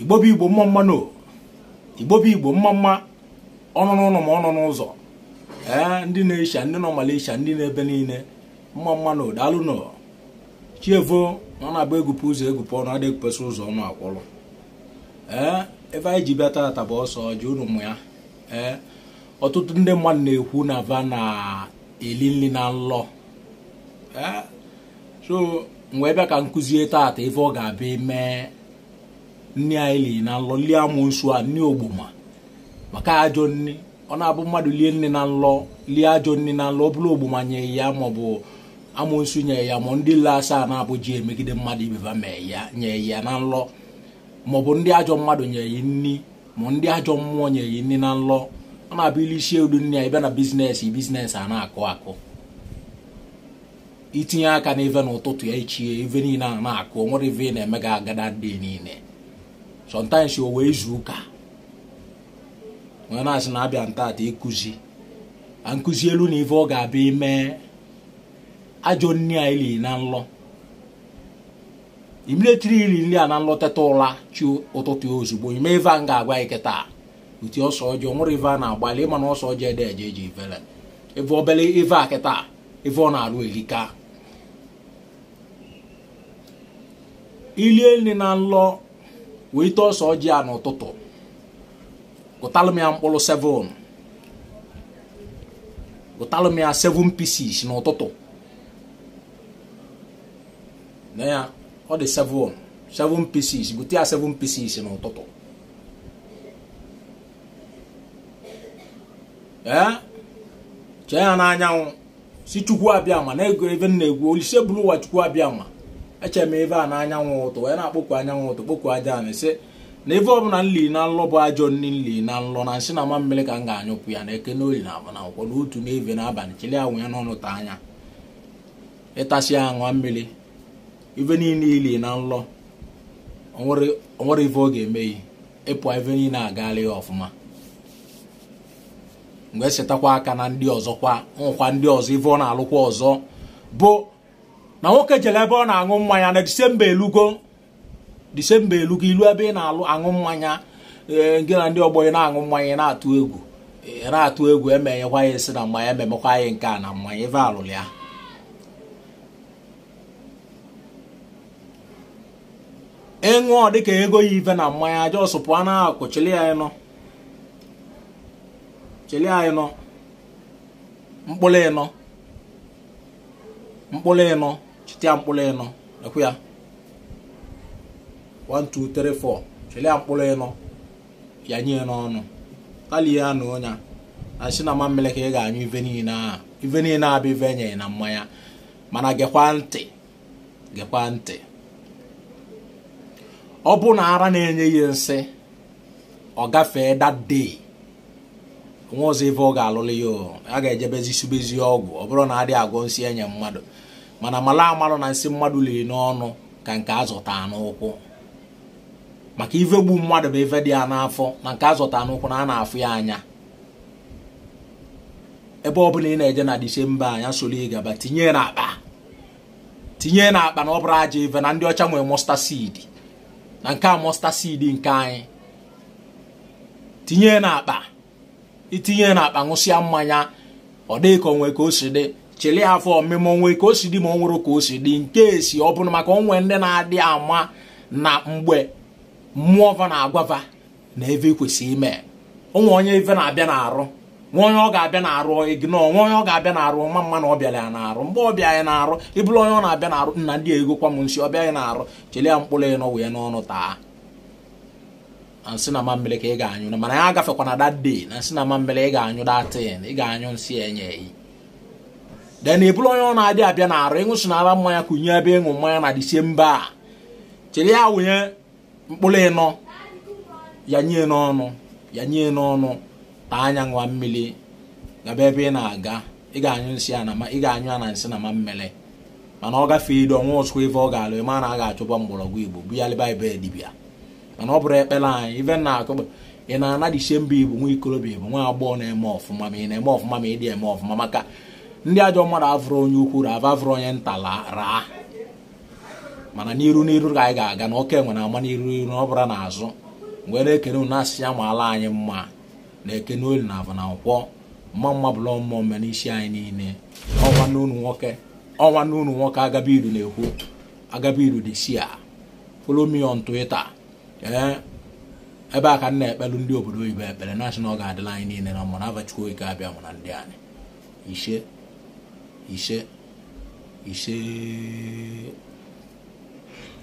igbo bụ igbo mma mma no igbo bụ igbo mma mma ọnụ n'ụlọ ma n'ụzọ ee eh, ndị na-esha ndị nọ Malaysia ndị na-ebe niile mma mma no daalụ nọ chievo na ọ na-agba egwupe ụzọ egwupe ọnụ adịghị kwesị ụzọ ọnụ akwụrụ ee eh, ebe anyị ji bịa tata bụ ọsọ ji unu ya ee eh, ọtụtụ ndị mmadụ na-ekwu na va na-eli nri na nlọ ee so mgbe bịa ka nkụzie tata ife ọ ga-abịa mee nne anyị lii na nlọ lie amụnsu a nne ogboma maka ajọ nne ọ na-abụ mmadụ lie nne na nlọ lie ajọ nne na nlọ ọ bụrụ ogboma nye ya maọbụ amụnsu nye ya ma ndị nle asaa na-abụji emegide mmadụ ibeba mee ya nye ya na nlọ maọbụ ndị ajọ mmadụ nye ya nni ma ndị ajọ mmụọ nye ya nni na nlọ ọ na-abụ ili isi udu nne ya ịbịa na bizinesi bizinesi a na-akụ akụ itinye aka n'ife n'ụtụtụ ya ichie ive niile a na-akụ nwere ive na emega agada dị niile sometimes o wee izu ụka onye na-asị na abịa ntata ịkụzi a nkụzi elu na ife ọ ga-abịa ime ajọ nri a ili na nlọ imiletiri iri nri a na nlọ teta ụra chi ụtụtụ ozugbo ime ife a m ga-agwa anyị kịta uti ọsọ ọjọọ nwere ife a na-agbalị ịma na ọsọ ọjọọ ede eje eji ifele ife obele ife a kịta ife ọ na-arụ erika ilie nri na nlọ wee ọsọ ọjị ya n'ụtụtụ gụtalụ m 7 gụtalụ m 7 pieces n'ụtụtụ na ya ọ dị 7 7 pieces gụta ya 7 pieces n'ụtụtụ ee chee ya anyanwụ si chukwu abịa ma na-ego ebe na-egwu olise bụrụ ụwa chukwu abịa ma eche m ebe a na anyanwụ ụtụ wee na-akpọkwu anyanwụ ụtụ kpọkwu aja na sị na ebe bụla nli na nlọ bụ ajọ nri nli na nlọ na nsị na mamịrị ka m ga-anyụpụ ya na eke n'oli na agba na akwụkwọ na otu n'eve n'abalị chele anwụ ya n'ọnụ ta anya ịtasị ya ṅụọ mmiri ibe niile ili na nlọ onwere ife ọ ga-emeghi ịpụ ife niile agaala ya ọfụma mgbe e setakwa aka na ndị kwa nkwa ndị ọzọ ife ọ na-alụkwa ọzọ bụ na nwoke jere ebe ọ na-aṅụ mmanya na disemba elugo disemba elugo ilu ebe ị na-alụ aṅụ mmanya gị eh, na ndị ọgbọ ị na-aṅụ mmanya ị na-atụ egwu ị na-atụ egwu emeghekwa ya esi na mmanya ememekwa anyị nke a na mmanya ebe alụrụ ya ịṅụọ dịka ego ya ive na mmanya jos pụa na akụ chili anyị nọ chili anyị nọ mkpụrụ ịnọ mkpụrụ ịnọ chite ya mkpụrụ ịnọ ekwe ya 1 2 3 4 ya mkpụrụ ịnọ ya nye n'ọnụ kalie ya na onya na si na ka ị ga-anyụ ive niile ahụ ive niile abụ ive enyeghị na mmanya mana gekwa ntị gekwa ntị ọ bụ na ara na-enye ihe nsị ọ gafee dee. nwa ọzọ ife ọ ga-alụlụ ya a ga-ejebezi subezi ọgwụ ọ bụrụ na adị agwọ nsị enye mmadụ mana mala amalụ na nsị mmadụ liri n'ọnụ ka nke azụta n'ụkwụ maka ife gbu mmadụ bụ ife dị ya n'afọ na nke azụta n'ụkwụ na a na-afụ ya anya ebe ọ bụla ị na-eje na disemba anya soro ịgaba tinye n'akpa tinye n'akpa na ọ bụrụ aja ife na ndị ọcha nwere mọsta na nke a mọsta nke anyị tinye n'akpa itinye na akpa ṅụsịa mmanya ọ dịghị ka onwe ka o si dị chele ya afọ ọmịma onwe ka o si dị ma ọ nwụrụ ka o si dị nke esi ọ bụrụ maka onwe ndị na-adị ama na mgbe mmụọ va na-agwava na eve kwesịrị ime onwe onye ife na-abịa na-arụ nwa onye ọ ga-abịa na-arụ igno nwa onye ọ ga-abịa na-arụ ma mma na ọ bịara ya na-arụ mgbe ọ bịa ya na-arụ ịbụrụ onye ọ na-abịa na-arụ nna ndị ego kwa m nsi ọbịa ya na-arụ chele ya mkpụrụ ịnọ wee n'ọnụ taa na nsị na ka ị ga-anyụ na mana ya agafekwana that day na nsị na mambele ị ga-anyụ datin ị ga-anyụ nsị enye eyi then ị onye ọ na-adị abịa na arụ ịṅụsịnara mmanya kụnye ebe ịṅụ mmanya na disemba a chere ya wụnye mkpụrụ ịnọ ya nye n'ọnụ ya nye n'ọnụ taa anya ṅụa mmiri gaba ebe ị na-aga ị ga-anyụ nsị a ị ga-anyụ a na nsị na mammele mana ọ gafee ido ọnwa ọsụkwa ebe ọ ga-alụ ị ma na a ga mgbọrọgwụ igbo bụ ya lịba ebe dibịa mana ọ bụrụ ekpere anyị ibe na akụkpọ ị na-anadichie mba igbo nwa ikolobịa igbo nwa agbọghọ na-eme ọfụma ma ị na-eme ọfụma ma ị dị eme ọfụma maka ndị ajọ mmadụ avụrụ onye ukwu ava avụrụ onye nta raa mana n'iru n'iru ka anyị ga-aga na oke nwere ama n'iru iru ọ bụla n'azụ mgbe na-ekene unu asị ya ma anyị mma na-ekene olu na avụ na nkwọ mma mma bụla mmụọ mme n'isi anyị niile ọnwa n'unu nwoke ọnwa n'unu nwoke agaba na-ekwu agabiru dị si a follow on Twitter Eh? ebe a ka na-ekpelu ndị obodo oyibo ekpere nashọnal ga-adịla anyị niile na mmanụ abachukwu oge abịa mụ na ndị anyị ise ise ise